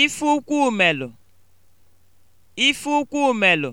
ife ụkwụ ụmelụ ife ụkwụ ụmelụ